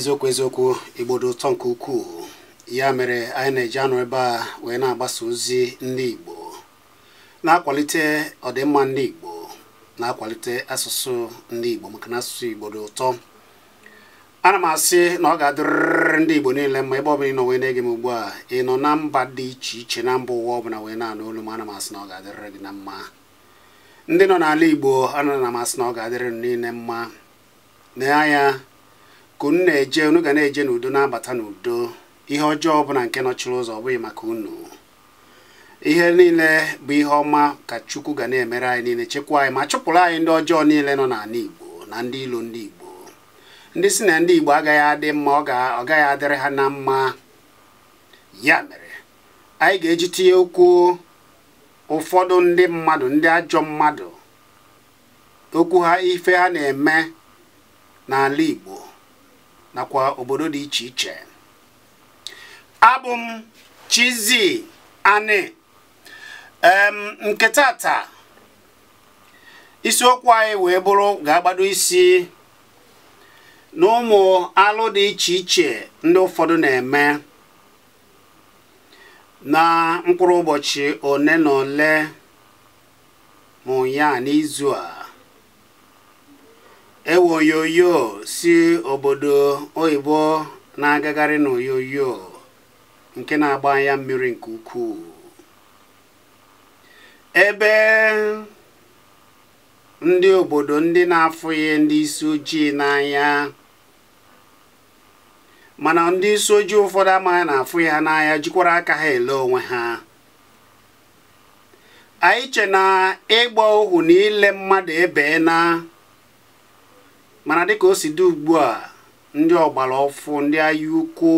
eziokwu eziokwu igbo ụtọ nke ukwuu ya mere anyị na-eji anụ ebe a wee na-agbasa ozi ndị igbo na-akwalite ọdịmma ndị igbo na-akwalite asụsụ ndị igbo maka na asụsụ igbo ụtọ ana m asị na ọ ga-adịrịrị ndị igbo niile mma ebe ọbụla ị nọ wee na-ege m ugbu a ị nọ na mba dị iche iche na mba ụwa ọbụla wee na-anụ olu m ana m asị na ọ ga-adịrịrị gị na mma ndị nọ n'ala igbo ana m asị na ọ ga-adịrị niile mma nee anya ka unu na-eje unu ga na-eje n'udo na-abata n'udo ihe ọjọọ ọbụla nke nọchiri ụzọ ọ bụghị maka unu ihe niile bụ ihe ọma ka chukwu ga na-emere anyị niile chekwa anyị ma chụpụrụ anyị ndị ọjọọ niile nọ n'ala igbo na ndị ilo ndị igbo ndị si na ndị igbo agaghị adị mma ọ gaghị adịrị ha na mma ya mere anyị ga-eji tinye okwu ụfọdụ ndị mmadụ ndị ajọ mmadụ okwu ha ife ha na-eme n'ala igbo nakwa obodo dị iche iche abụ m Ani nke tata isiokwu anyị wee bụrụ ga-agbado isi n'ụmụ alụ dị iche iche ndị ụfọdụ na-eme na mkpụrụ ụbọchị ole na ole ma n'izu a ewe oyoyo si obodo oyibo na-agagharị n'oyoyo nke na-agba anya mmiri nke ukwuu ebe ndị obodo ndị na-afụghị ndị isi ojii n'anya mana ndị isi ojii ụfọdụ amaghị na-afụ ha n'anya jikwara aka ha ele onwe ha anyị che na ịgba ohu na ile mmadụ ebee na mana dịka o si dị ugbu a ndị ọgbara ọfụ ndị ahịa ukwu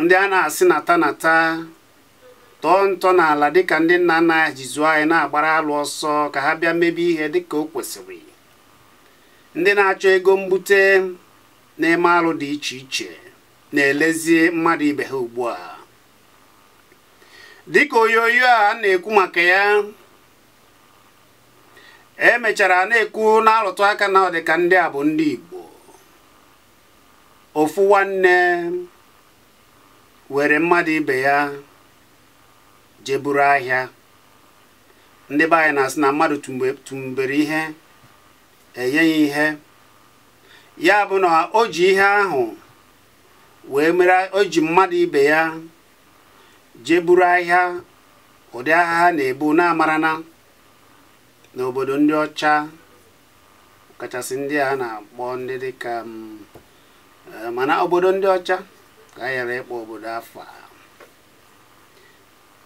ndị a na-asị nata nata tọọ ntọ n'ala dịka ndị nna nna ya anyị na-agbara alụ ọsọ ka ha bịa mebe ihe dịka o kwesịrị ndị na-achọ ego mbute na-eme alụ dị iche iche na elezie mmadụ ibe ha ugbu a dịka onyonyo a na-ekwu maka ya emechara na-ekwu na-alụtụ aka na ọdịka ndị a bụ ndị Igbo ofu nwanne were mmadụ ibe ya jeburu ahịa ndị be anyị na-asị na mmadụ tụmbere ihe enye ya ihe ya bụ na o ji ihe ahụ wee mere o mmadụ ibe ya jeburu ahịa ụdị agha ha na-ebu na n'obodo ndị ọcha kachasị ndị a na-akpọ ndị dịka mm, eh, mana obodo ndị ọcha ka a ghara ịkpọ obodo afọ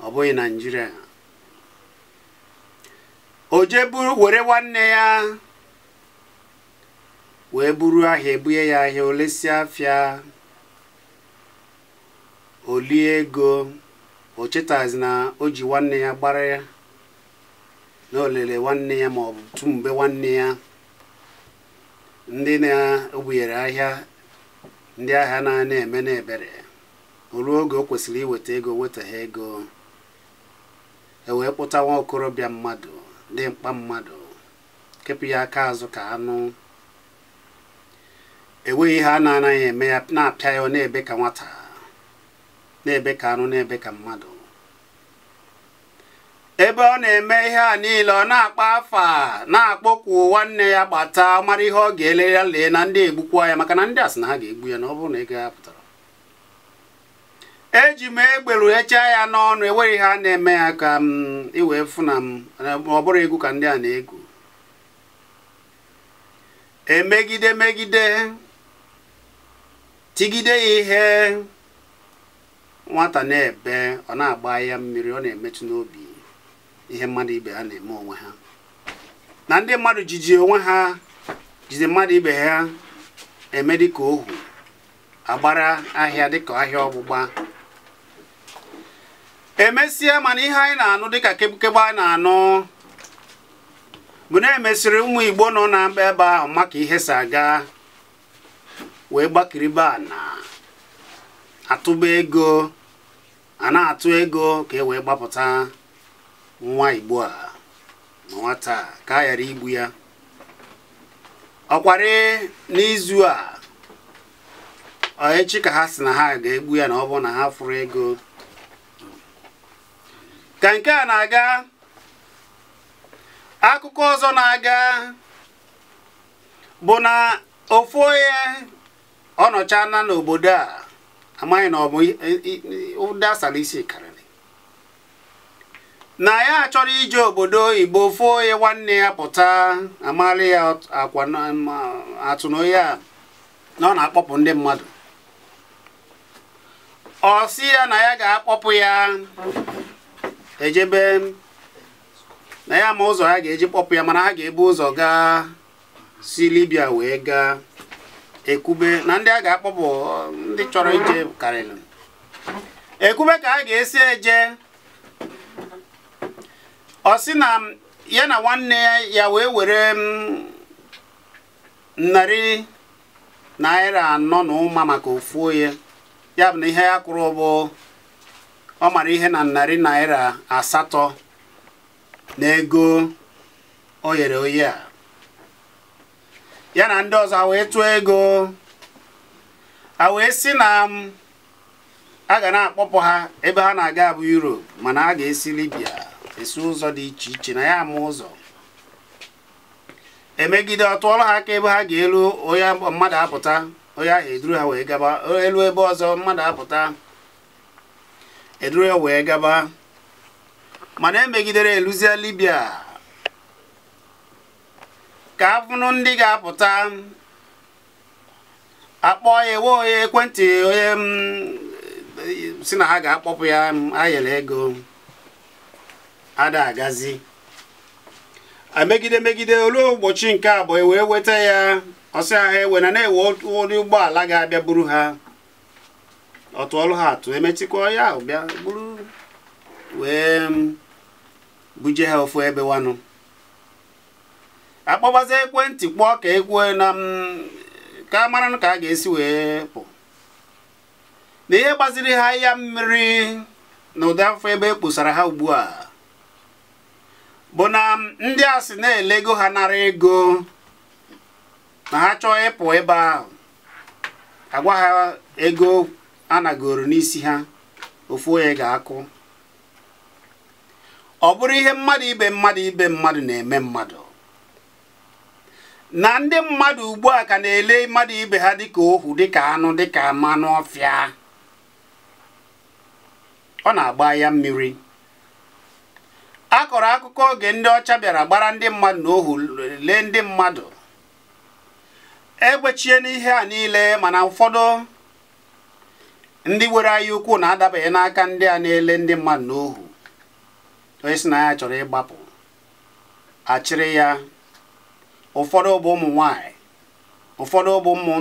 ọ bụghị naijiria o jee buru were nwanne ya wee buru ahịa ebunye ya ahịa olesi afịa olie ego o chetazi na o ji nwanne ya gbara ya n'olele nwanne ya ma ọ bụ tu mgbe nwanne ya ndị na-ebunyere ahịa ndị ahịa na-ana eme n'ebere ebere ruo oge o kwesịrị iweta ego weta ha ego e wee kpụta nwa okorobịa mmadụ dị mkpa mmadụ kepụ ya aka azụ ka anụ enweghị ihe a na-anaghị eme ya na-apịa ya na-ebe ka nwata na-ebe ka anụ na-ebe ka mmadụ ebe ọ na-eme ihe a niile ọ na-akpa afa na-akpọkwu nwanne ya gbata mara ihe ọ ga-ele ya lee na ndị egbukwa ya maka na ndị asị na ha ga-egbu ya na ọ bụrụ na ego ya pụtara eji m egberu echa ya n'ọnụ ihe a na-eme ya ka m iwee m ọ bụrụ egwu ka ndị a na-egwu emegide megide tigide ya ihe nwata na-ebe ọ na-agba ya mmiri ọ na-emetụ n'obi ihe mmadụ ibe ha na-eme onwe ha na ndị mmadụ jiji onwe ha jide mmadụ ibe ha eme dịka ohu agbara ahịa dịka ahịa ọgbụgba emesịa mana ihe anyị na-anụ dịka kebukebe anyị na-anụ bụ na emesịrị ụmụ igbo nọ na mba ebe ahụ maka ihe si aga wee gbakiriba na atụba ego a atụ ego ka e wee gbapụta nwa igbo a na nwata ka a ghara igbu ya ọkwari n'izu a echi ka ha si na ha ga-egbu ya na ọ bụ na ha furu ego ka nke a na-aga akụkọ ọzọ na-aga bụ na ofu onye ọ nọcha n'obodo a amaghị na ọ bụ ụdị asala isi kara na ya achọrọ ije obodo igbo foo onye nwanne ya pụta amarị ya akwa atụnoyi a na ọ na-akpọpụ ndị mmadụ ọ si ya na ya ga-akpọpụ ya ejebe na ya ma ụzọ ya ga-eji kpọpụ ya mana ha ga-ebu ụzọ gaa si libya wee gaa ekwube na ndị a ga-akpọpụ ndị chọrọ ije karịrị ekube ka ha ga-esi eje ọ sị na ya na nwanne ya wee were mm, narị naira anọ na maka ofu onye ya bụ na ihe ya kwuru bụ ọ mara ihe na narị naira asatọ na ego o nyere oyi a ya na ndị ọzọ wee tụọ ego a wee sị na mm, a ga na-akpọpụ ha ebe ha na-aga bụ Europe mana a ga-esi Libya esi ụzọ dị iche iche na ya ama ụzọ emegide ọ tụọla ha aka ebe ha ga-elu onye mmadụ apụta onye ahụ eduru ha wee gaba elu ebe ọzọ mmadụ apụta eduru ya wee gaba mana emegidere eluzia libya ka afụnụ ndị ga-apụta akpọ ya ewe onye ekwentị onye mm, si na ha ga-akpọpụ ya mm, ayere ego ada agazi megide megide olu ụbọchị nke abụọ e wee weta ya ọsị ha ewe na na-ewe ụdị ụgbọala ga-abịa buru ha ọtụ ọrụ ha atụ emetikwa ya ahụ bịa buru wee mm, buje ha ofu ebe wanụ akpọbazi ekwentị kpọọ ka ekwue na mm, ka a mara ka a ga-esi wee pụ na ihe gbaziri ha ya mmiri na ụdị afọ ebe e kposara ha ugbu a bụ na ndị a si na-elego ha nara ego ma ha chọọ ịpụ ebe ahụ agwa ha ego anagoro n'isi ha ofu onye ga-akụ ọ bụrụ ihe mmadụ ibe mmadụ ibe mmadụ na-eme mmadụ na ndị mmadụ ugbu a ka na-ele mmadụ ibe ha dịka ohu dịka anụ dịka mmanụ ọfịa ọ na-agba ya mmiri a kọrọ akụkọ oge ndị ọcha bịara gbara ndị mmadụ na ohu lee ndị mmadụ egbechie n'ihe a niile mana ụfọdụ ndị nwere anya ukwu na-adabaghị n'aka ndị a na-ele ndị mmadụ na ohu onye si na ya chọrọ ịgbapụ achịrị ya ụfọdụ bụ ụmụ nwanyị ụfọdụ ụmụ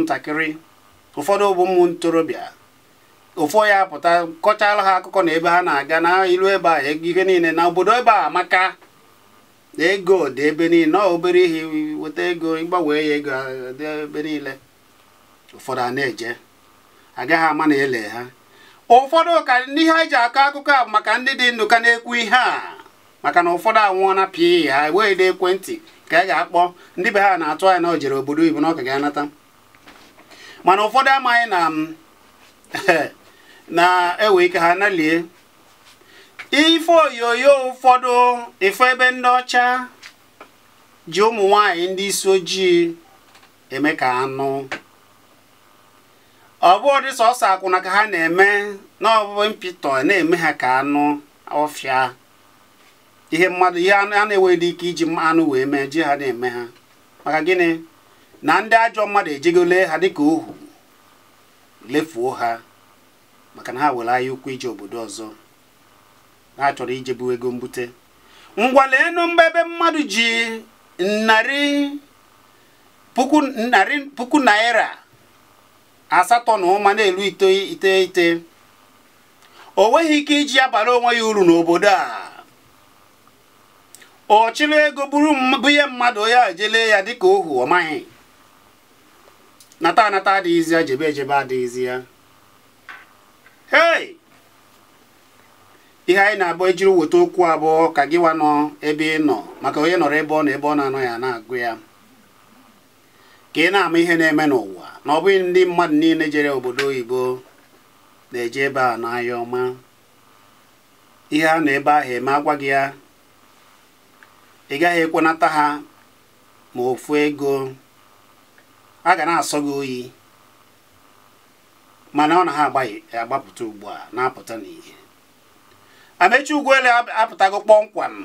ụfọdụ bụ ụmụ ntorobịa ụfọ ya pụta kọchaala ha akụkọ na ebe ha na-aga na ilu ebe a ihe niile na obodo ebe a maka ego dị ebe niile na obere ihe weta ego ịgbanwee ya ego dị ebe niile ụfọdụ a na-eje agaghị ama na ele ha ụfọdụ ka ndị anyị ji akọ akụkọ a maka ndị dị ndụ ka na-ekwu ihe a maka na ụfọdụ anwụọna na pii ha enweghị dị ekwentị ka a ga-akpọ ndị be ha na-atụ anya na o jere obodo ibu na ọ ka ga-anata mana ụfọdụ amaghị na na-ewe ike ha nalie ife onyonyo ụfọdụ ife ebe ndị ọcha ji ụmụ nwanyị ndị isi ojii eme ka anụ ọ bụghị sọsọ akwụna ka ha na-eme na ọbụbụ mpịtọ na-eme ha ka anụ ọfịa ihe mmadụ ihe a na-enweghị ike iji anụ wee mee ji ha na-eme ha maka gịnị na ndị ajọ mmadụ ejegole ha dịka ohu lefuo ha maka na ha were ahịa ukwu ije obodo ọzọ ha chọrọ ijebu ego mbute ngwa leenu mgbe ebe mmadụ ji narị puku narị puku naira asatọ na ụma na-elu iteghete o nweghị ike iji ya bara onwe ya uru n'obodo a ọ ego bụrụ ihe mmadụ ya ejele ya dịka ohu ọ maghị nata anata adịghịzi ya jebe ejebe adịghịzi ya hei ihe anyị na-abụ ejiri weta okwu abụọ ka gị wa nọ ebe ị nọ maka onye nọrọ ebe ọ nọ ebe ọ na-anọ ya na-agụ ya ka ị na-ama ihe na-eme n'ụwa na ọ bụghị ndị mmadụ niile jere obodo oyibo na-eje ebe a n'ahịa ọma ihe a nọ ebe ahụ eme agwa gị ya ị gaghị ekwenata ha ma ofu ego a ga na-asọ gị oyi mana ọ na ha agbapụta ugbu a na-apụta n'ihe amechi ugwuele apụtago kpọmkwam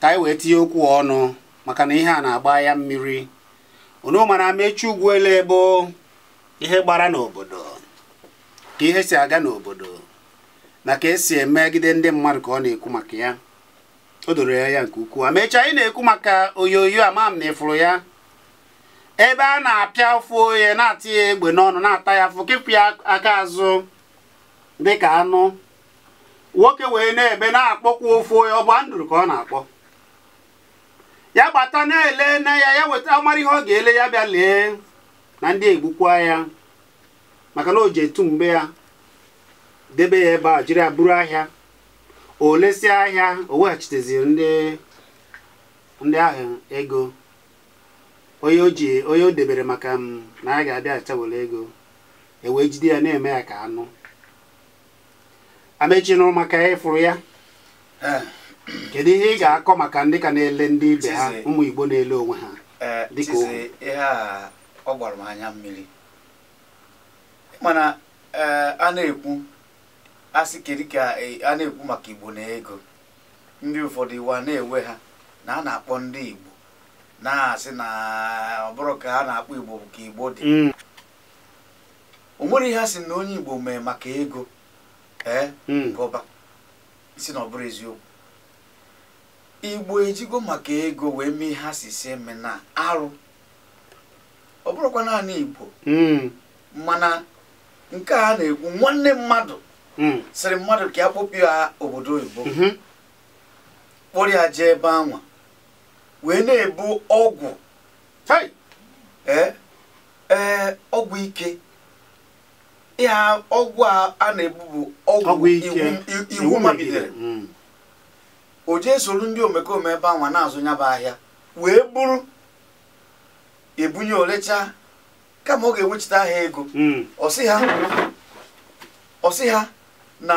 ka anyị wee tinye okwu ọnụ maka na ihe a na-agba ya mmiri unu mana amechi ugwuele bụ ihe gbara n'obodo ka ihe si aga n'obodo na ka esi emegide ndị mmadụ ka ọ na-ekwu maka ya o doro ya nke ukwuu amechi anyị na-ekwu maka oyoyo amam na ịfụrụ ya ebe a na-apịa ụfụ ohe na-atị ya egbe n'ọnụ na-ata ya afụ kepụ ya aka azụ dịka anụ nwoke wee na-ebe na-akpọkwa ụfụ ohe ọ bụ ndụrụ ka ọ na-akpọ ya gbata na-ele na ya ya weta ọmara ihe ọ ga-ele ya bịa lee na ndị egbukwa ya maka na o ji etu mgbe ya debe ya ebe a jiri ya buru ahịa o lesịa ahịa o weghachiteziri ndị ahụ ego onye o onye o debere maka m mm, na a ga-abịa achawere ego ewee jide ya na-eme ya ka anụ amechi nụrụ maka ịfụrụ ya eh. kedu ihe ị ga-akọ maka ndị ka na-ele ndị ibe ha ụmụ Igbo na-ele onwe ha eh, dịka ihe ọ anya mmiri mana eh, a na-ekwu asị kedu ka a na-ekwu maka Igbo na ego ndị ụfọdụ na-ewe ha na a na-akpọ ndị Igbo na-asị na ọ bụrụ ka a na-akpọ igbo ka igbo dị mm. o nwere ihe a sị na onye igbo mee maka ego ee gọba mm. si na ọ bụrụ eziokwu igbo ejigo maka ego wee mee ihe si si eme na arụ ọ bụrụkwa naanị igbo mm. mana nke a na-ekwu nwanne mmadụ sịrị mmadụ ka ya kpopụ ya obodo oyibo mm-hmm. kpọrọ ya jee ebe anwa wee na-ebu ọgwụ ee e, ọgwụ ike ịha ọgwụ a na-ebu bụ ọgwụ iwu mabidere hmm. o jee soro ndị omekome ebe anwa na-azụ nyaba ahịa wee bụrụ ebunye olecha kama ọ ga enwechita ha ego hmm. ọsị ha na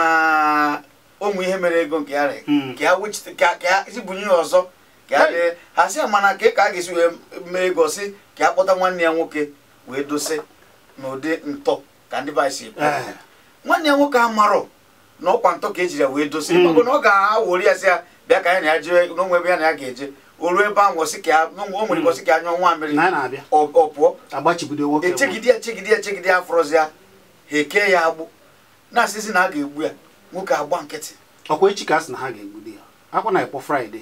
ụmụ ihe mere ego nke ya hmm. ya ọzọ ka a mana ka ka a ga-esi wee mee ego ka akpọta nwanne ya nwoke wee dosi n'ụdị ntọ ka ndị baịsi si ekwu eh. nwanne ya nwoke amarọ na ọkwa ntọ ka ejiri ya wee dosi hmm. maka na ọ ga-awori ya si ya bịa ka ya na ya jee n'onwe ebe ya na ya ga-eje o ruo ebe ahụ o nwere gosi hmm. ka anyụọ nwa mmiri ọ pụọ echegide e ya chegide ya chegide ya afọrọzi ya ha eke ya agbụ na-asịzi na a ga-egbu ya nwoke agba nkịtị ọkwa echi ka a sị na ha ga-egbu di ya akwa na ekpọ fraịde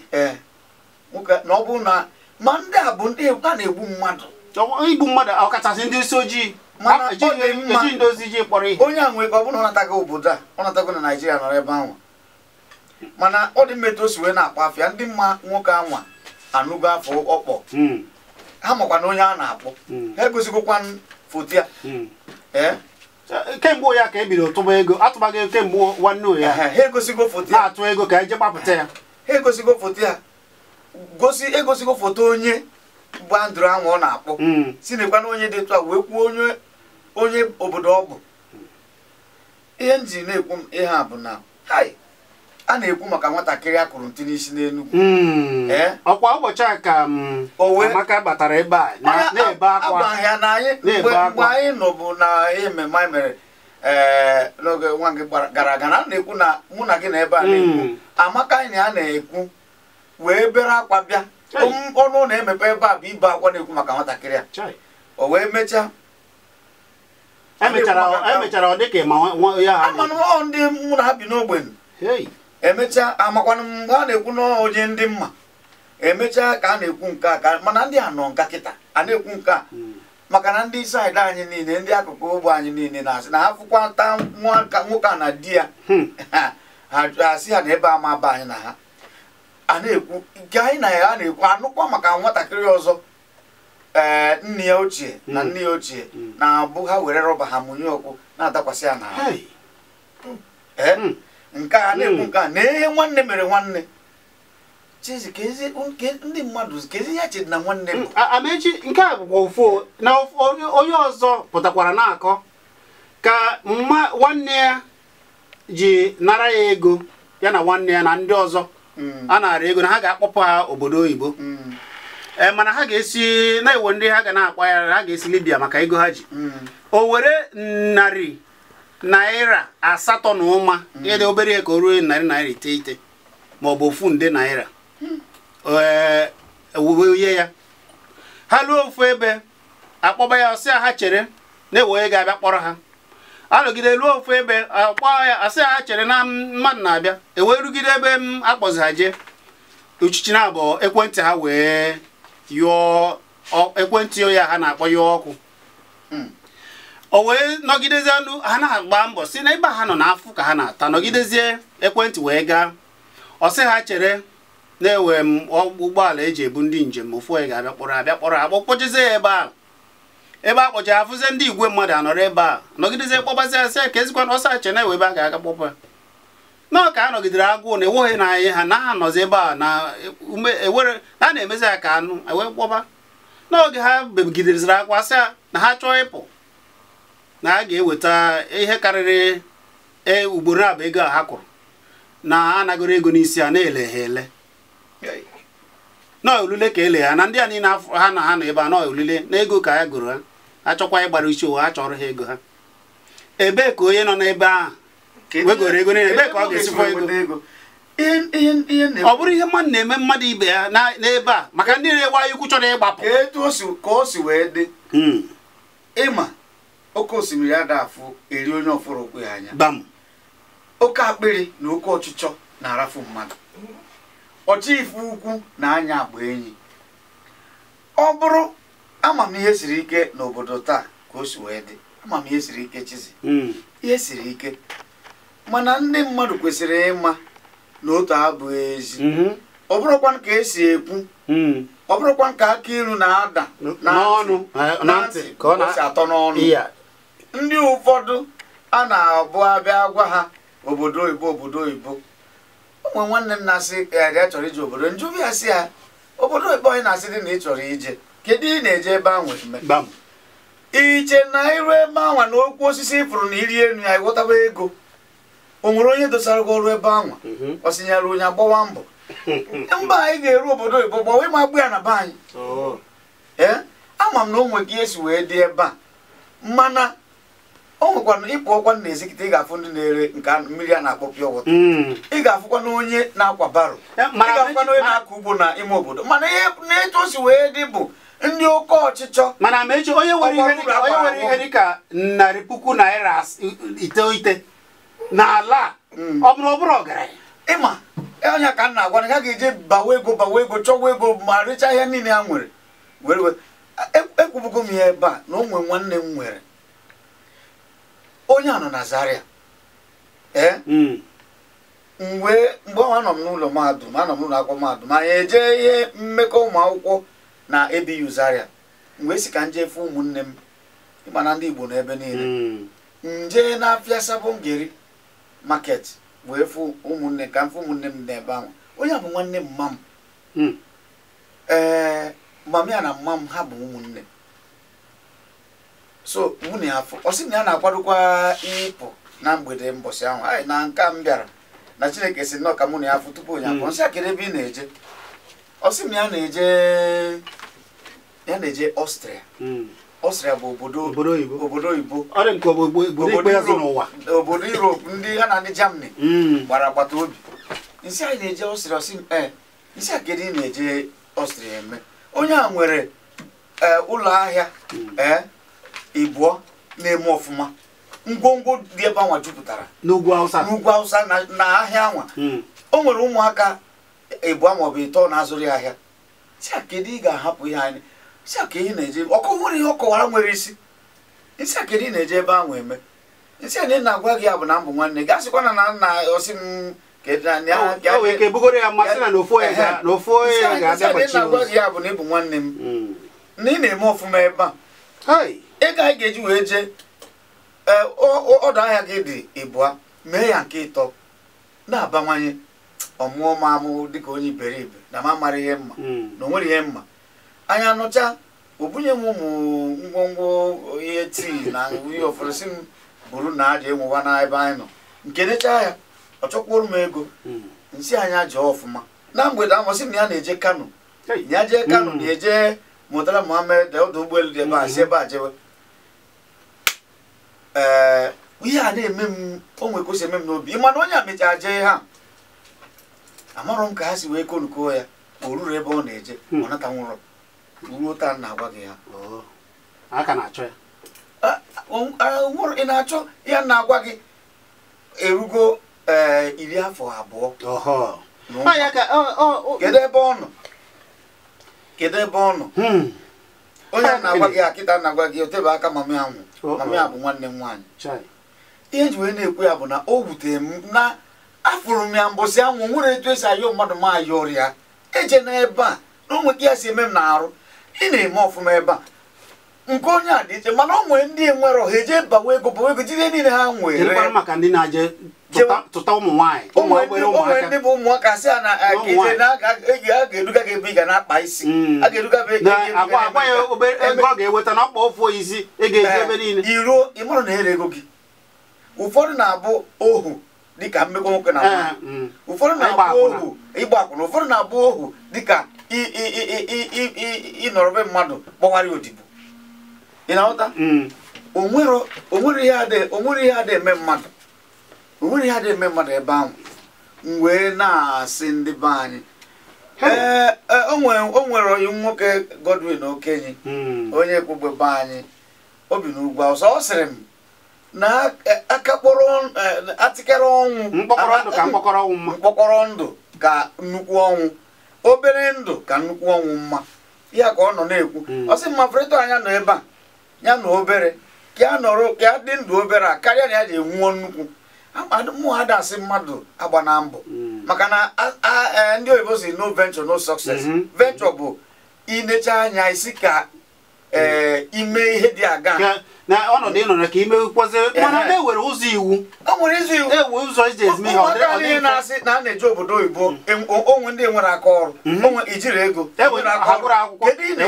nwoke na ọ bụrụ na ma ndị a bụ ndị a na-egbu mmadụ igbu mmadụ ọkachasị ndị isi ojii mana eji ndozi ji kpọrọ ihe onye a nwere ka ọ bụrụ natago obodo a ọ natago na naijiria nọrọ ebe ahụ mana ọ dị mmetụ o wee na-akpọ afịa ndị mma nwoke anwa anụgo afọ ọkpọ hmm. ha makwa onye a na-akpọ hmm. ha egosigokwa foto ya hmm. kemgbe ya ka e bidoro tụba ego atụbaghị ego kemgbe nwanne ya ha egosigo foto ya atụ ego ka e je gbapụta ya ha egosigo foto ya gosi egosigo foto onye bụ andụrụ anwụ ọ na-akpọ hmm. si nekwa na onye dị tụ wee kwuo onye onye obodo ọ bụ ihe m ji na-ekwu m ihe a bụ na a na-ekwu maka nwatakịrị a ntị n'isi n'Enugwu hmm. eh? ọkwa ụbọchị a ka hmm, Amaka batara ebe a na-ebe akwa ahịa na anyị mgbe anyị nọ na ememme anyị mere eh, n'oge nwa gị gara aga na a na-ekwu na mụ na gị na ebe a na-ekwu Amaka anyị na ya na-ekwu wee bere akwa bịa ọnụ na-emepe ebe a bụ ibe akwa na-ekwu maka nwatakịrị a o wee mechaa emechara e ọ ndị mụ na abi bi n'ogbenye emechaa amakwanụ mgbe a na-ekwu n'onye ndị mma emechaa ka a na-ekwu nke a ka mana ndị a nọ nka kịta a na-ekwu nke a hmm. maka na ndị saịdị anyị niile ndị akụkụ ogbo anyị niile na-asị na afụkwata nwoke a na di ya hmm. ha asị ha na ebe ama ba anyị na ha a na-ekwu nke anyị na ya na-ekwu anụkwa maka nwatakịrị ọzọ ee nne ya ochie na nne ya ochie hmm. na-abụ ha were rọba ha mụnye ọkụ na-adakwasị ya n'ahụ Ee! Hmm. nke a na-ekwu hmm. nke a na ihe nwanne mere nwanne chizi ndị mmadụ ka ezi ya chedi na nwanne m amechi nke a bụkwa ofu na onye ọzọ pụtakwara na-akọ ka nwanne ya ji nara ya ego ya na nwanne ya na ndị ọzọ a na-ara ego na ha ga-akpọpụ ha obodo oyibo mm. e, mana ha ga-esi na-ewo ndị ha ga na ya ha ga-esi libya maka ego ha ji mm. o were narị naira asatọ na ụma mm. dị obere ihe ka o ruo narị naira iteghete ma ọ bụ ofu nde naira e, ewuwe ihe ya ha luo ofu ebe akpọba ya ọsịa ha chere na-ewe onye abịa kpọrọ ha anọgide ruo ofu ebe akpọ ya asị ha chere na mmadụ na-abịa ewee rugide ebe m akpọzi ha jee uchichi na abụọ ekwentị ha wee yụọ ekwentị ya ha na-akpọ yụọ ọkụ hmm. o wee nọgidezie ndụ ha na-agba mbọ si na ebe ha nọ na-afụ ka ha na-ata nọgidezie ekwentị wee gaa ọ sị ha chere na-ewe m ụgbọala eji ebu ndị njem ofu onye ga-abịa kpọrọ abịa kpọrọ ya ebe ahụ ebe a kpọcha afụzie ndị igwe mmadụ anọrọ ebe a nọgidezie kpọbazi asị ka ezikwa na ọsa achena ewe ebe a ga-aga kpọpa nọọ ka a nọgidere agụụ na enweghị na anyị ha na anọzi ebe a na ewere e a na-emezi ya ka anụ ewe kpọba n'oge ha begideziri akwa sị na ha chọọ ịpụ na a ga-eweta ihe karịrị e, ugboro abụ ego a ha kwụrụ na anagoro ego n'isi a na-ele ha ele nọọ olule ka ele na ndị a niile ha na ha nọ ebe a nọọ olule na ego ka ya goro ha achọkwa chọkwa ịgbara uche ụwa achọrọ ha ego ha ebee ka onye nọ n'ebe ahụ e wegoro ego niile ebee ka ọ ga-esikwa ego ọ bụrụ ihe mmadụ na-eme mmadụ ibe ya n'ebe a maka ndị na-ewe anyị ukwu chọrọ ịgbapụ ka o si wee dị hmm. ịma oke osimiri a ga afụ eri onye ọfụrụ okwe ya anya oke akpịrị na oke ọchịchọ na-arafu mmadụ ọchịife ukwu na anya agba enyi ọ bụrụ ama m ihe siri ike n'obodo taa ka o si wee dị ama m ihe siri ike chizi hmm. ihe siri ike mana ndị mmadụ kwesịrị ịma na otu abụghị ezi mm-hmm. ọ bụrụkwa ka esi ekwu hmm. ọ bụrụkwa ka aka ilu na-ada na ntị ka ọ na-atọ atọ n'ọnụ ndị ụfọdụ a na-abụ abịa gwa ha obodo oyibo obodo oyibo ụmụ nwanne m na-asị ya chọrọ ije obodo njụbịa si ya obodo oyibo anyị na-asị dị na ị chọrọ ije kedu ị na-eje ebe ahụ iche na iru ebe anwa na okwu osisi ịfụrụ na iri elu ya ịghọtaba ego o nwere onye dosara gị ọrụ ebe anwa mhm. ọ sinyere onye agbawa mbọ mba anyị ga-eru obodo oyibo gbawa ịma agbụ ya na be anyị ee oh. ama m na ụmụ gị esi wee dị ebe a mana o nwekwara ịpụ ọkwa na ezikite ị ga-afụ ndị na-ere nke mmiri a na-akpọ pịa wọta mm. ị ga-afụkwa na onye na-akwa baro ị ga-afụkwa na onye na-akọ ugbo na ime obodo mana ihe na-etu si wee dị bụ ndị oke ọchịchọ mana mechi onye nwere ihe dịka dịka narị puku naira iteghete n'ala mm. ọ bụrụ ọbụrụ ọgaranya ịma ọnya e, ka m na na ha ga-eje bawa ego bawa ego chọwa ego ma rechaa ihe niile ha nwere were ekwubugo e, e m ya ebe a na onwe nwanne m nwere onye a nọ na Zaria mm. mgbe mgbe ọnwa anọ m n'ụlọ mahadum anọ m n'ụlọ akwụkwọ mahadum anyị eje ihe mmekọ ụmụ akwụkwọ na ebiyu zaria mgbe esi ka nje fụ ụmụnne m ịma na ndị igbo na ebe niile hmm. nje na afịa Ngeri market wee fụ ụmụnne ka mfe ụmụnne m n'ebe ahụ onye bụ nwanne mma m hmm. ee ya na mma m ha bụ ụmụnne so nwunye afọ ọ na ya na-akwadokwa ịpụ na mgbede mbọsị ahụ anyị na nka m bịara na chineke si nnọọ ka mụ na ya afọ tupu onye afọ hmm. nsị akịrị ebe ị na-eje ọ na ya na-eje ya na-eje ọstrịa ọstrịa hmm. bụ obodo oyibo obodo Europe ndị ha na ndị Germany hmm. gbara agbata obi nsi anyị na-eje ọstrịa ọsị m eh, ee isi a kedu na-eje ọstrịa eme onye a nwere eh, ụlọ ahịa hmm. ee eh, ịbụọ na-eme ọfụma ngwongwo dị ebe anwa jupụtara n'ugwu Hausa na ahịa anwa o nwere ụmụaka ịbụọ maọbụ ịtọ na-azụrụ ya ahịa si a ị ga-ahapụ ihe anyị isi a ka ị na-eje ọkụ nwere ihe nwere isi isi a ka ị na-eje ebe ahụ eme isi a na ị na-agwa gị ya bụ na mbụ nwanne gị asịkwa na na nna ọsị m na ah, ya bụ na ịbụ nwanne m hmm. na ị na-eme ọfụma ebe a ego anyị ga-eji wee jee e, ọdụ ahịa gị dị ịbụa mee ya nke ịtọ na-abawanye ọmụọ m amụ dịka onye iberibe na mara ihe mma hmm. na o ihe mma anyị anụcha o bunye m ụmụ ngwongwo ihe tii na ihe ofesi m buru na aja enwewa na ebe anyị nọ nke nechaa ya ọ chọkwuru m ego hmm. nsị anyị ajọ ọfụma na mgbede amasị m ya na-eje kano ya jee kano hmm. na-eje mụtara muhammed ọdụ ụgbọelu dị ebe a si hmm. ebe a jewe ee ihe a na-eme m onwe kwesị eme m n'obi mana onye a mechaa jee ha amarọ m ka ha si wee konuko ya o ruru ebe ọ na-eje ọ nata nwụrọ ruo taa na-agwa gị ya oh. aka na-achọ ya ah, um, ah, nwụrụ ị na-achọ ya na-agwa gị erugo eh, iri afọ abụọ kedu ebe ọ nọ kedu ebe ọ nọ hmm. onye na-agwa gị akịta na-agwa gị otebe aka mami anwụ oh, mami oh. a bụ nwanne m nwaanyị ihe ji wee na-ekwu ya bụ na o wutere m na afụrụ m ya mbọsị anwụ nwere etu esi ayọ mmadụ m ayọrịa eje n'ebe a na onwe gị ya si eme m na arụ ị na-eme ọfụma ebe a nke onye a dị iche mana ọ nwere ndị nwere ọha eje bawa ego bawa ego jide niile ha nwere maka ndị na-aje tụta ụmụ nwanyị onwere ndị bụ ụmụaka sị a na ga-eduga gị ebe ị ga na-akpa isi hmm. a ga-eduga ebe ịga na ọkpa isi eji ebe niile iruo na ere ego gị ụfọdụ na-abụ ohu dịka mmekọ nwoke na nwaanyị hmm. ụfọdụ na-abụ ohu ịgba akwụna ụfọdụ na-abụ ohu dịka ịnọrọbe mmadụ gbawara odibo ị na-aghọta hmm. onwere ihe adị eme mmadụ onwere ihe adị eme mmadụ ebe ahụ m wee na-asị ndị be anyị ee e, o nwere oyi nwoke Godwin Okenye hmm. onye kwugbe be anyị Obi bi n'ugwu awụsa ọ sịrị m na akakpọrọ e, e, atịkere ọnwụ mkpọkọrọ ndụ ka nnukwu ọnwụ obere ndụ ka nnukwu ọnwụ mma ya ka ọ nọ na-ekwu hmm. ọ sị mma freto anya nọ ebe a ya na obere ka ya nọrọ ka ya dị ndụ obere a karịa na ya ji enwuo nnukwu mụ ha dasị mmadụ agba na mbụ. Hmm. maka na e, ndị oyibo si no venture no success hmm. venture bụ inecha anya isi ka Eh, ime ihe dị aga na ọnọdụ ịnọ ka ime kwụkwọzie mana na ewere ụzọ iwu ewe ụzọ iji e ezime ihe ọdịda ihe na-asị na a na-eji obodo oyibo mm. onwe ndị nwere aka ọrụ mm-hmm. onwe ijiri ego ewere aka ọrụ akwụkwọ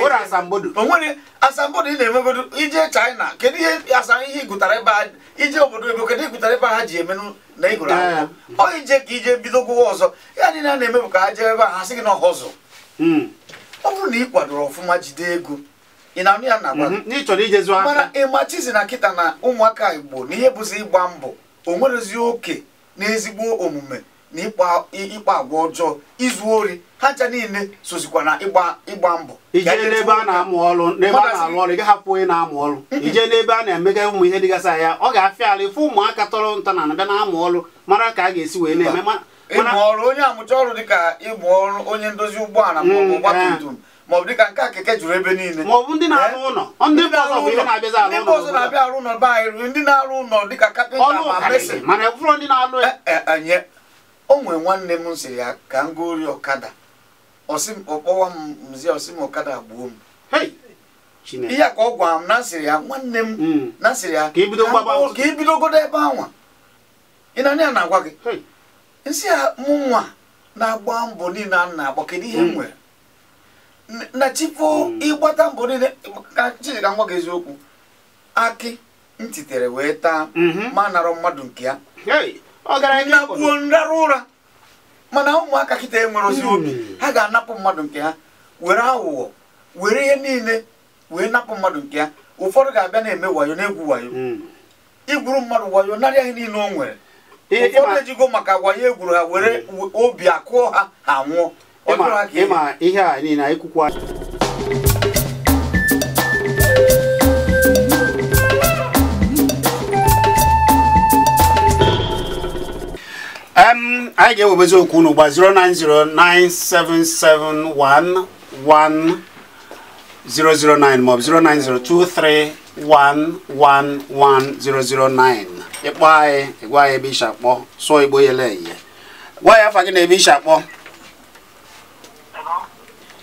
e asambodo onwere asambodo ị na-enwegodo ije China kedu ihe asa ihe igụtara ebe a ije obodo oyibo kedu igụtara ebe a ha ji eme na igoro akwụkwọ ọ ije ka ije bido gwụwa ọzọ ya dị a na-emebụ ka ha jee ebe a ha sị gị na ọhọzọ mm. ọ bụrụ na ị kwadoro ọfụma jide ego ị na-anụ ya na mhm. n'ịchọrọ ijezu aka mana ịma chizi na kịta na ụmụaka igbo na ihe bụzi ịgba mbọ o nwerezi oke na ezigbo omume na ịkpa agwa ọjọọ izu ori ha ncha niile sozikwa na ịgba mbọ ijee n'ebe a na-amụ ọrụ n'ebe a na-arụ ọrụ ị hapụ onye na-amụ ọrụ ijee n'ebe a na-emega ụmụ ihe dịgasị ya ọ ga-afịa ala ịfụ ụmụaka tọrọ nta na abịa na-amụ ọrụ mara ka a ga-esi wee na-eme ịmụ ọrụ onye amụcha ọrụ dịka ịmụ ọrụ onye ndozi ụgbọala mm, maọbụ ọgbatumtum eh. maọbụ dịka nke keke juru ebe niile maọbụ ndị na-arụ eh? ụlọ ndị mba ọzọ na-abịa arụ ụlọ be anyị ndị na-arụ ụlọ dịka kapịnta ma mesin mana ekwụrụ ndị eh, eh, o nwere nwanne m siri ya ka m gori ọkada ọkpọwa m mzi ọsị m ọkada gbuo m ihe ka ọ gwara m na sịrị ya nwanne m hmm. na sịrị ya ka ibidogodo ebe anwa ị na ya na-agwa gị nsị ya mụ nwa na-agba mbọ niile a na-agba kedu ihe m hmm. nwere na chifo hmm. ịgbata mbọ niile ka Chijika nwa gị eziokwu akị ntitere wee taa mhm. ma narụ mmadụ nke ya nagbuo nrara ụra mana ụmụaka kịta enwere ozi obi hmm. ha ga-anapụ mmadụ nke ha were aghụghọ were ihe niile wee napụ mmadụ nke ya ụfọdụ ga-abịa na-eme wayo na-egwu wayo hmm. igwuru mmadụ wayo narịa ihe niile o nwere ụfọdụ ejigo maka wayo egwuru ha were obi akụọ ha ha nwụọ ema ema iha ni na ikukwa um anyị ga-ewebezi okwu unu gba 09097711009 maọbụ 09023111009 ịkpọ anyị gwa anyị ebe isi akpọ sụọ igbo yele eye gwa ya afa gị na ebe isi akpọ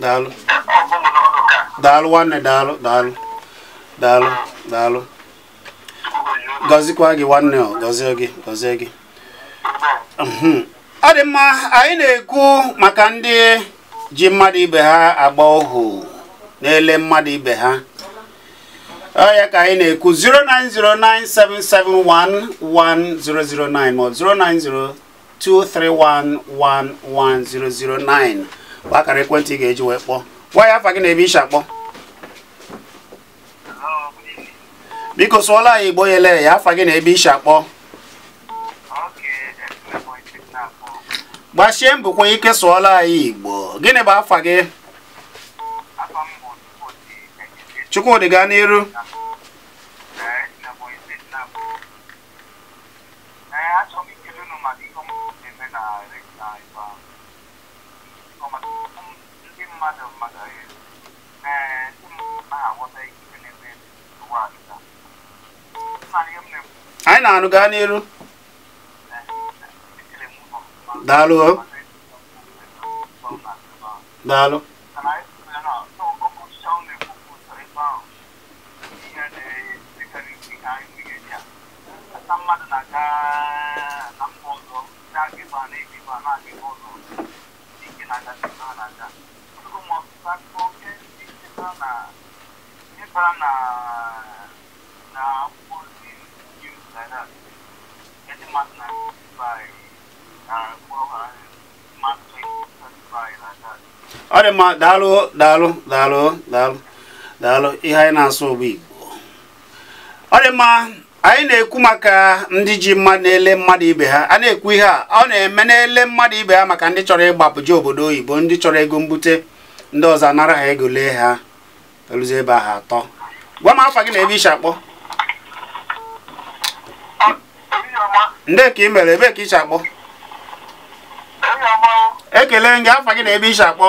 daalụ daalụ nwanne daalụ daalụ daalụ daalụ gọzikwa gị nwanne gọzie gị gọzie gị mhm. ọ dị mma anyị na-ekwu maka ndị ji mmadụ ibe ha agba ohu na-ele mmadụ ibe ha ọ ya ka anyị na-ekwu 09097711009 ma 09023111009 akara ekwentị ị ga-eji wee kpọọ gwa ya afa gị na ebe ishi akpọ biko sụọla anyị igbo yele ya afa gị na ebe ishi akpọ gbachie mbụkwa ike sụọla anyị igbo gịnị bụ afa gị chukwudị gaa n'iru anyị na-anụ gaa n'iru daalụ daalụ na ọ dị mma daalụ daalụ daalụ daalụ daalụ ihe anyị na-asụ bụ igbo ọ dị mma anyị na-ekwu maka ndị ji mma na-ele mmadụ ibe ha a na-ekwu ihe a ọ na-eme na-ele mmadụ ibe ha maka ndị chọrọ ịgbapụ ịgbapụje obodo oyibo ndị chọrọ ego mbute ndị ọzọ anara ha ego lee ha eluzi ebe ha atọ gwa m afa gị na ebe ishi akpọ ndị ka ị mere ebe ka ishi akpọ ekele gị afa gị na ebe ishi akpọ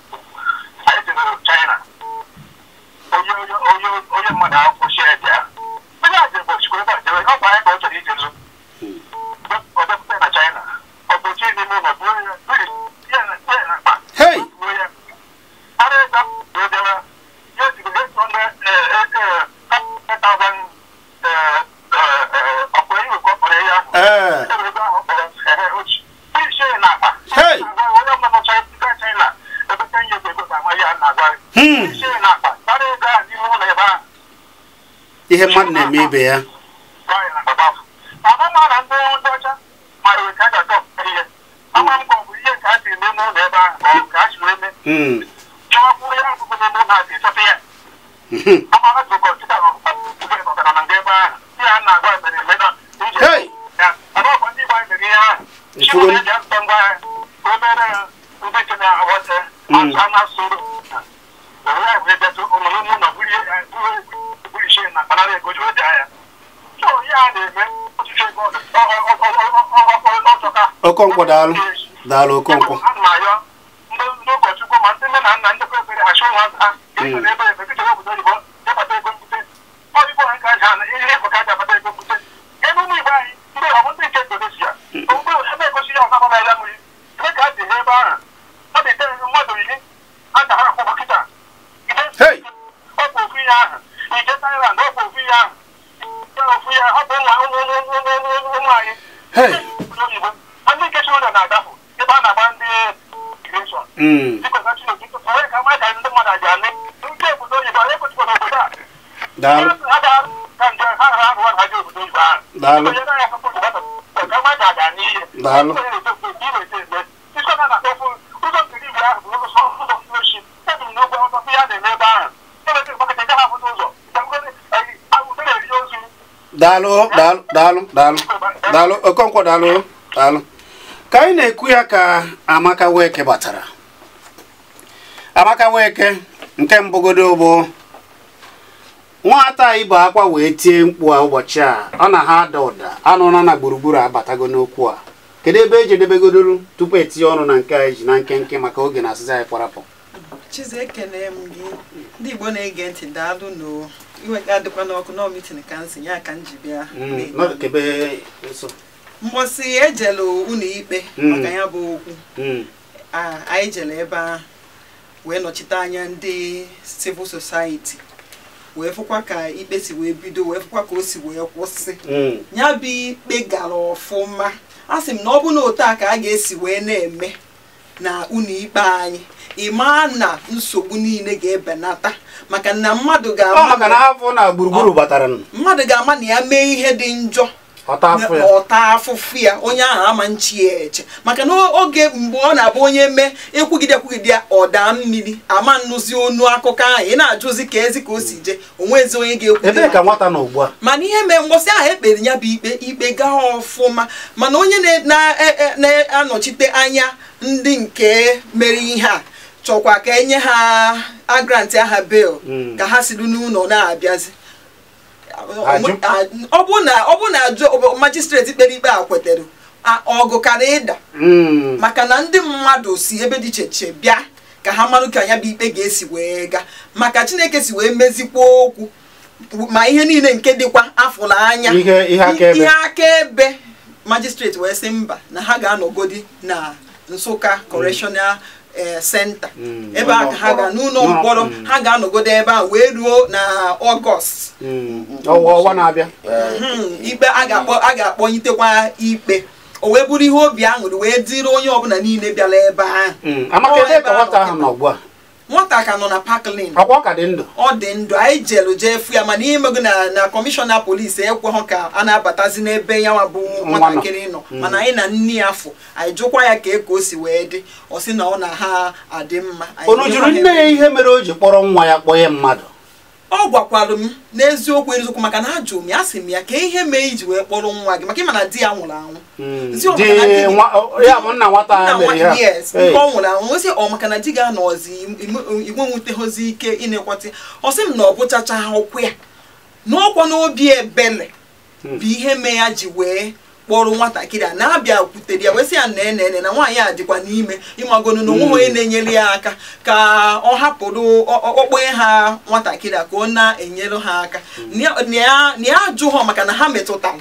ihe mmadụ na-eme ibe ya ikwuru hmm. hmm. Okonkwo daalụ daalụ Okonkwo daalu daalu daalu daalụ oh, daalụ daalụ daalụ daalụ okonkwo oh, daalụ oh, daalụ ka anyị na-ekwu ya ka Amaka Weke batara Amaka Weke nke mbụgodo bụ nwata anyị bụ akwa wee tie mkpu a ụbọchị a ọ na ha ada ụda anụrụ na gburugburu abatago n'okwu a kedu ebe eji tupu etinye ọnụ na nke a e ji na nkenke maka oge na asịza anyị kwarapụ chize ekele m gị ndị igbo na-ege mm, ikpe mm. maka ya bụ okwu mm. anyị ebe ahụ wee nọchite anya ndị civil society wee fụkwa ka ikpe si wee bido wee fụkwa ka o si wee kwụsị mm. ya bụ ikpe gara ọfụma a sị m na ọ bụ na ka a ga-esi wee na-eme na unu ikpe anyị ịma na nsogbu niile ga-ebenata maka na mmadụ ga-ama na ya mee ihe dị njọ ọta ya onye ahụ ama nchi ya eche maka na oge mgbe ọ na-abụ onye mee ekwugide ekwugide ya ọda mmiri ama nnụzi onu akụkọ ahụ ị na-ajụzi ka ezi ka o si jee ezi onye ga-ekwu ka nwata ugbu a mana ihe mee mgbọsị ahụ ekpere ya bụ ikpe ikpe gaa ọfụma mana onye e, e, na-anọchite anya ndị nke mere ihe a chọkwa ka enye ha agrant aha bel hmm. ka ha siri n'ụlọ na-abịazi ọ bụ na ajụ majistreti kpere ikpe a kwetere ọgụ kara ịda hmm. maka na ndị mmadụ si ebe dị iche iche bịa ka ha marụ ka anya bụ ikpe ga-esi wee ga. maka chineke si wee mezikwa okwu ma ihe niile nke dịkwa afọ anya. ihe akaebe majistreti wee sị mba na ha ga-anọgodi na Nsụka correctional senta eh, mm. ebe a ha ga n'ụlọ mm. mkpọrọ mm. ha ga-anọgodo ebe a wee ruo na ọgọst ọnwa na-abịa hmm, ikpe a ga-akpọnyitekwa ikpe o wee bụrụ ihe obi aṅụrị wee dịrị onye ọbụla niile bịara ebe ahụ nwata ka nọ na paklin ọ dị ndụ ọ dị ndụ anyị jelu jee fụ ya mana imego na na kọmishọna polisi ekweghọ ka a na-abatazi n'ebe ya nwa bụ nwatakịrị nọ mm. mana anyị na nne ya afọ anyị jụkwa ya ka eko o si wee dị ọ si na ọ na ha adị mma unu jụrụ nne ya ihe mere o ji kpọrọ nwa ya kpọnye mmadụ ọ gwakwara m n'eziokwu eziokwu maka na ajụ m ya sị m ya ka ihe mee iji wee kpọrọ nwa gị maka na di ya nwụrụ anwụ hmm. ọ nwụrụ anwụ osi ọ maka na di ga anọzi igwe nwutehozi ike ịnekwati ọ sị m na ọ bụchacha ha ụkwụ ya n'ọkwa n'obi ebele hmm. bụ ihe mee ya ji wee kpọrọ nwatakịrị a na-abịa kwutere ya wesị ya na enene na nwaanyị a dịkwa n'ime ịmagonu na onwe onye mm. na-enyere ya aka ka ọ hapụrụ okpokpe ha nwatakịrị a ka ọ na-enyere ha aka mm. na ya ajụ ha maka na ha metụtara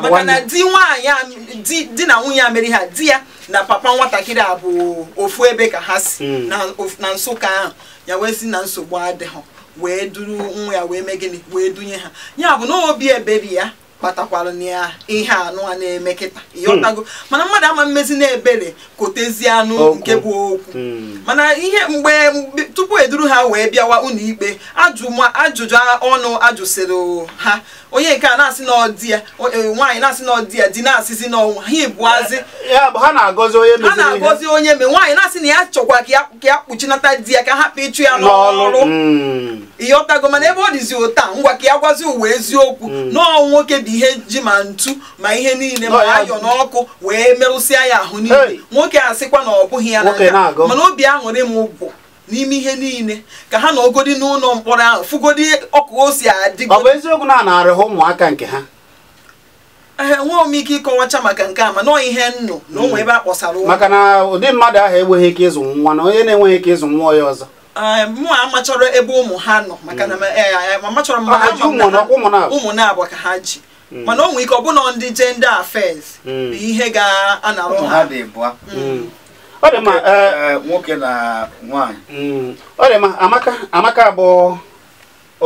maka na di nwaanyị di na nwunye a mere ha di ya na papa nwatakịrị a bụ ofu ebe ka ha si mm. na Nsụka ahụ ya wee na nsogbu adịghị wee duru nwa ya wee mee gịnị wee dunye ha ya bụ na obi ebere ya kpatakwalụ ya ihe anụ a na-eme kịta ịghọtago hmm. mana mmadụ ama mmezi na-ebere kotezi anụ nke bụ okwu hmm. mana ihe mgbe tupu eduru ha wee bịawa ikpe ajụjụ ọnụ ajụsịrị ha onye nke a na-asị na ọdị ya e, nwaanyị na-asị na ọdị ya di na-asịzi n'ọnwa ha ebuazi ha na-agọzi onye me nwaanyị na-asị na ya chọkwa ka ya kpuchinata di ya ka hapụ ịchụ ya n'ọrụ ịghọtago hmm. mana ebe ọ dịzi ụta ngwa ka ya gwazi ụwa eziokwu n'ọnwụ nwoke bi ihe ji ma ntu ma ihe niile ma ayọ n'ọkụ wee merụsịa ya ahụ niile nwoke asịkwa na ọ bụghị ya n'aka mana obi aṅụrị m bụ n'ime ihe niile ka ha na ogodi n'ụlọ mkpọrọ ahụ fụgodi ọkụ o si adịgo ọ bụ eziokwu na a na-arịhụ ụmụaka nke ha ee nwe m ike ịkọwacha maka nke a ma nọọ ihe nnụ na ụmụ ebe a kpọsara ụlọ maka na ụdị mmadụ ahụ enweghị ike ịzụ nwa na onye na-enweghị ike ịzụ nwa ya ọzọ mụa amachọrọ ebe ụmụ ha nọ maka na hmm. amachọrọ e, e, m ma ha ụmụ na-abụ ka ha ji Hmm. mana o nwere ike ọbụna ndị jenda afes hmm. bụ ihe ga-anarụ ha hmm. ọ dị mma nwoke eh, eh, na nwanyị ọ dị mma amaka amaka bụ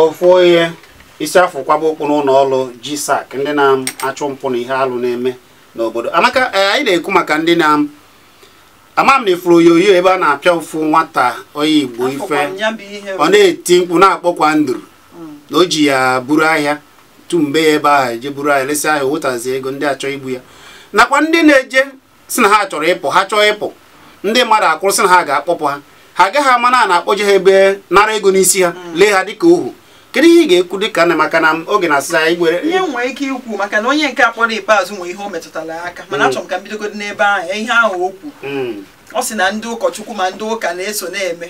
ofu onye isi afọ kwaba okpu n'ụlọ ọrụ GSAC ndị na-achụ mpụ na ihe alụ na-eme n'obodo amaka eh, anyị na-ekwu maka ndị na ama m na ifuru oyoyo ebe a na-apịa ụfụ nwata onye igbo ife ọ na-eti mkpu na-akpọkwa nduru na o ji ya buru ahịa tumbe ya ebe ahụ eje buru anyị lesị ahụ owetazi ego ndị achọ igbu ya nakwa ndị na-eje si na ha chọrọ ịpụ ha chọọ ịpụ ndị mmadụ akwụrụ sị na ha ga-akpọpụ ha ha agaghị ama na na-akpọje ha ebe nara ego n'isi ha mm. lee ha dịka ohu kedu ihe ị ga-ekwu dịka na maka na oge na-asị anyị gwere ihe nwere ike ikwu maka na onye nke akpọrọ ikpeazụ nwere ihe o metụtara aka mana mm. achọrọ m ka m bidogodi n'ebe ahụ ihe ahụ o kwu mm. ọ sị na ndị ụkọchukwu ma ndị ụka na-eso na-eme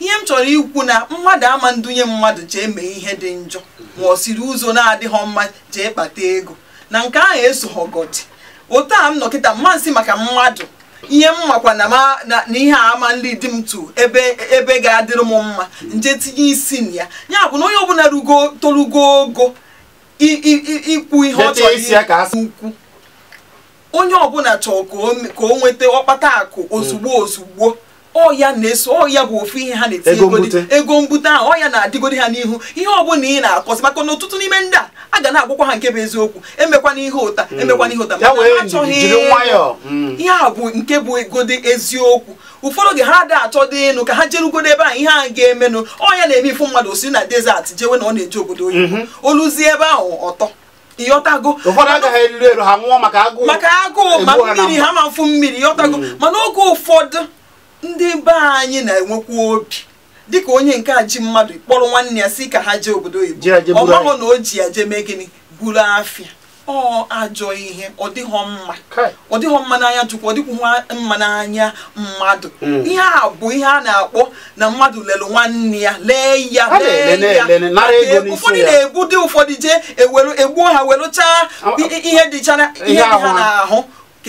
ihe m chọrọ ikwu na mmadụ ama ndunye mmadụ jee mee ihe dị njọ ma ọ siri ụzọ na-adịghọ mma jee kpata ego na nke ahụ esoghọgodi otu a m nọkịta mmasị maka mmadụ ihe m makwa na ihe ama ndị dị m tu ebe ga-adịrị m mma nje tinye isi na ya ya bụ na onye ọbụla tolugo torugo ogo ikwu ihe ọ chọrọ onye ọbụla chọrọ ka o nweta ọkpata akụ ozugbo ozugbo ọya na-eso ọya bụ ofu ihe ha na-etinye ego mbute ahụ ọya na-adịgodi ha n'ihu ihe ọbụla ị na-akọsị maka na ọtụtụ n'ime ndị a a ga na-agwakwa ha nke bụ eziokwu emekwana ihe ụta hmm. emekwana ihe ụta mana ha achọghị hmm. ihe a bụ nke bụ egodi eziokwu ụfọdụ oge ha adị achọ dị ịnụ ka ha jerugodo ebe ahụ ihe a ga-emenụ ọnya na-eme ifu mmadụ osi na desert jewe na ọ na-eje obodo oyi mhm. oluzie ebe ahụ ọtọ ịghọtago maka agụụ ma mmiri ha ma mfu mmiri ịghọtago hmm. mana oge ụfọdụ ndị be anyị na-enwekwa obi dịka onye nke a ji mmadụ kpọrọ nwanne ya si ka ha jee obodo oyibo ọ maghị na o ji ya jee mee gịnị buru afịa ọ ajọ ihe ọ dịghọ mma ọ dịghọ mma n'anya chukwu ọ dịkwughị mma n'anya mmadụ hmm. ihe a bụ ihe a na-akpọ na mmadụ lelụ nwanne ya lee ya lee ya ụfọdụ na egbu dị ụfọdụ jee e egbuo ha werụchaa ihe dịchara ihe dị ha n'ahụ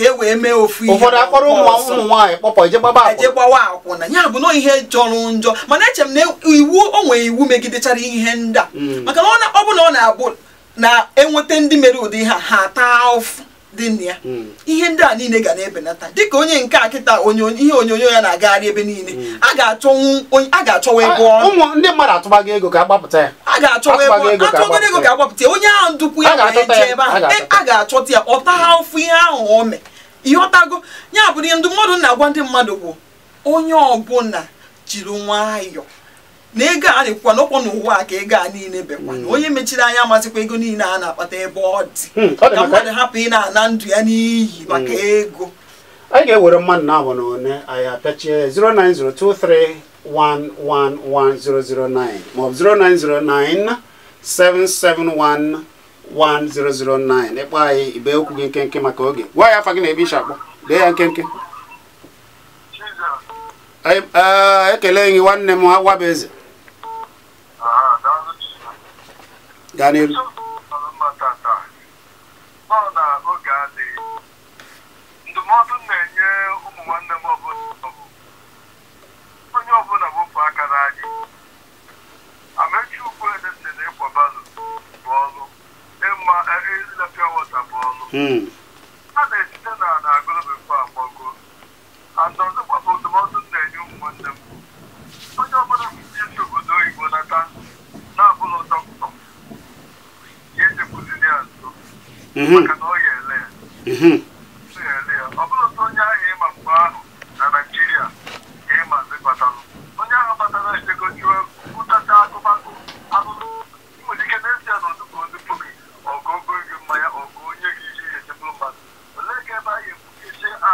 ka e wee mee ofu ihe ụfọdụ akpọrọ ụmụ nwaanyị kpọpọ je akwụna je akwụna ya bụ na ihe jọrọ njọ mana eche m na iwu o nwere iwu megidechara ihe ndị a hmm. maka na ọ bụ na ọ na-abụ na-enweta ndị mere ụdị ha ha taa ụfụ dị na ya hmm. ihe ndị a niile ga na-ebenata dịka onye nke a kịta ihe onyonyo ya na-agagharị ebe niile hmm. a ga-achọwa ego ọrụ ndị mmadụ atụbago ego ka gbapụta ya a ga-achọwa ego atụbago ego ka agbapụta ya onye ahụ ndụkwu ya wee jee ebe e, a ga-achọta ya ọ taa ụfụ ihe ahụ o mee ịghọtago ya bụ ihe ndụmọdụ na-agwa ndị mmadụ bụ onye ọbụla jiri nwayọọ na ego a na-ekwukwa n'ọkwọ n'ụwa ka ego a niile bekwa na hmm. onye mechiri anya amasịkwa ego niile a na-akpata ebe ọ dị hmm, ka mmadụ hapụ ị na-ana ndụ ya n'iyi hmm. maka ego anyị ga-ewere mmadụ na-abụ na one anyị apịachie 09023111009 maọbụ 0909 771 1009 ịkpọ anyị ibe okwu gị nkenke maka oge gwa ya gị na ebe isi akpọ dee ya nkenke eh, ekele gị nwanne m bụ eze gaa n'elu ndụmọdụ na-enye onye ma ɛyɛ ɛdina pure water bɔ no. ana etinye na na agolo bɛfo akpɔgo asase gbapɔ ndụmọdụ na enye ụmụ m onye ọbụla ji esi obodo oyibo nata na-abụla dọkịta ya ejekwuzili ya nso mm-hmm. maka na ọ ya ele ya ọ bụrụ onye ahụ ịma mgbe ahụ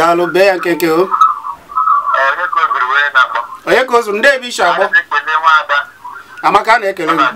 daalụ bee ya nke nke o onye ka o ndị ebe ishi agbọ amaka na-ekele gị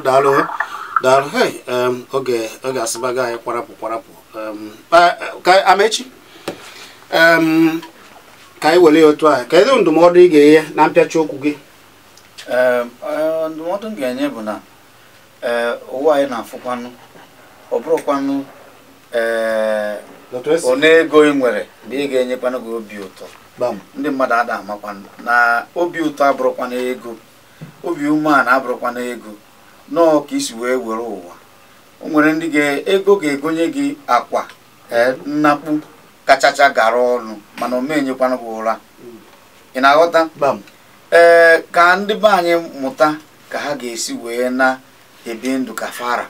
daalụ daalụ daalụ hei um, oge oge asịbago anyị kwarapụ kwarapụ um, ka amechi um, ka anyị were ya otu a kedu ndụmọdụ ị ga-enye na mpịachi okwu gị ndụmọdụ m ga-enye bụ na ụwa anyị na-afụkwanụ ọ bụrụkwanụ one ego ị nwere na ị ga-enyekwanụ gị obi ụtọ ndị mmadụ ada amakwanụ na obi ụtọ abụrụkwana ego obi umeala abụrụkwana ego nọọ ka isi wee were ụwa o nwere ndị ga-ego ga-egonye gị akwa e, nnakpu kachacha gara ọnụ mana omenyekwana gị ụra ị na-aghọta ee ka ndị be anyị mụta ka ha ga-esi wee na-ebi ndụ ka fara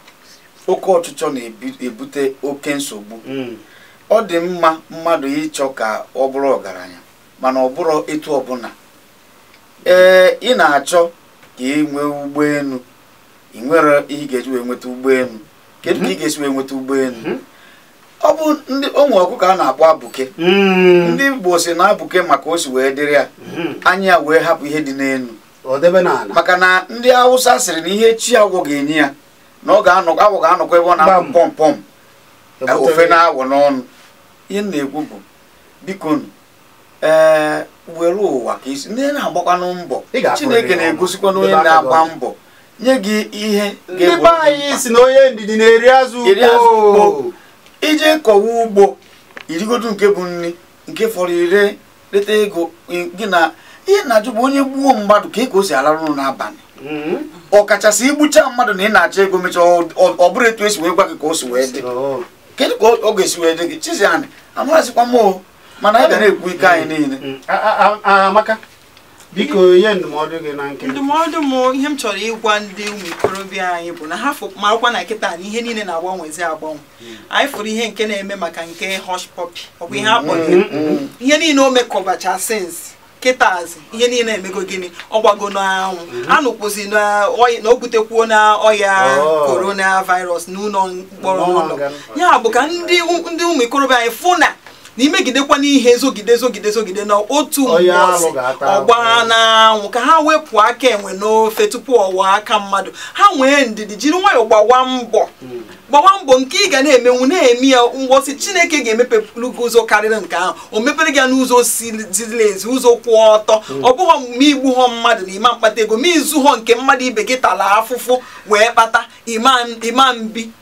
oke ọchịchọ na-ebute oke nsogbu mm. ọ dị mma mmadụ ịchọ ka ọ bụrụ ọgaranya mana ọ bụrụ etu ọbụla ee ị na-achọ ka ị nwee ụgbọelu ị nwere ihe ị ga-eji wee nweta ụgbọelu kedu ka ị mhm. ga-esi wee nweta ụgbọelu mhm. ọ bụ ndị onwe ọkụkọ a na-akpọ abụke mm. ndị Igbo si na abụke maka o si wee dịrị ya mhm. anya ya wee hapụ ihe dị n'elu maka na ndị awụsa sịrị na ihe chi agwọ ga-enye ya na ọ ga-anọkọ agwọ ga-anọkọ ebe ọ na-akpụ pọmpọm ofe na n'ọnụ ihe na-ekwu bụ biko ee were ụwa ka isi ndị na-agbakwanụ mbọ Chineke na-egosikwa na onye na-agba mbọ nye gị ihe ndị be anyị si na onye ndidi na-eri azụ ugbo ije kọwa ugbo irigodo nke bụ nri nke fọrọ ire leta ego gị na ihe na-ajụ bụ onye gbuo mmadụ ka e ka o si alarụ ụlọ n'abalị hmm? ọkachasị igbucha mmadụ na ị na-achọ ego mechaa ọ bụrụ etu esi wee gwa gị ka o si wee dị oh. kedu ka ọ ga-esi wee dị gị chizi anyị amaghịzikwa m mana anyị ga na-ekwu ike anyị hmm. niile hmm. biko ihe ndụmọdụ gị na nke ndụmọdụ m ihe m chọrọ ịgwa ndị ụmụ ikorobịa anyị bụ na ha marakwa na nkịta na ihe niile na-agbanwezi agbanwe hmm. anyị fụrụ ihe nke na-eme maka nke hush puppy ọ bụ ihe hmm. akpọrọ hmm. ihe niile o mekọbacha sins kịtazi ihe niile emego gịnị ọ gbago n'anwụ anụkwụzi na o butekwuo na ọya oh. corona virus n'ụlọ mkpọrọ n'ụlọ ya bụ ka ndị ụmụ ikorobịa anyị fụ na na imegidekwa n'ihe zogide zogide zogide na otu mgbọsị ọgba n'anwụ ka ha wepụ aka enwe n'ofe tupu ọwa aka mmadụ ha nwee ndidi jiri nwayọọ gbawa mbọ hmm. gbawa mbọ nke ị ga na-emenwu na-eme ya mgbọsị chineke ga-emepelu gị ụzọ karịrị nke ahụ o mepere gị n'ụzọ ziri ezi ụzọ kwụ ọtọ hmm. ọ bụghị ma igbu họ mmadụ na ima mkpata ego ma izu họ nke mmadụ ibe gị tara afụfụ wee kpata ima mbi